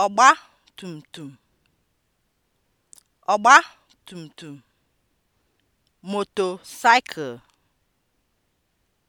tum tum, tum, ọ̀gbatùmtùm (motorcycle)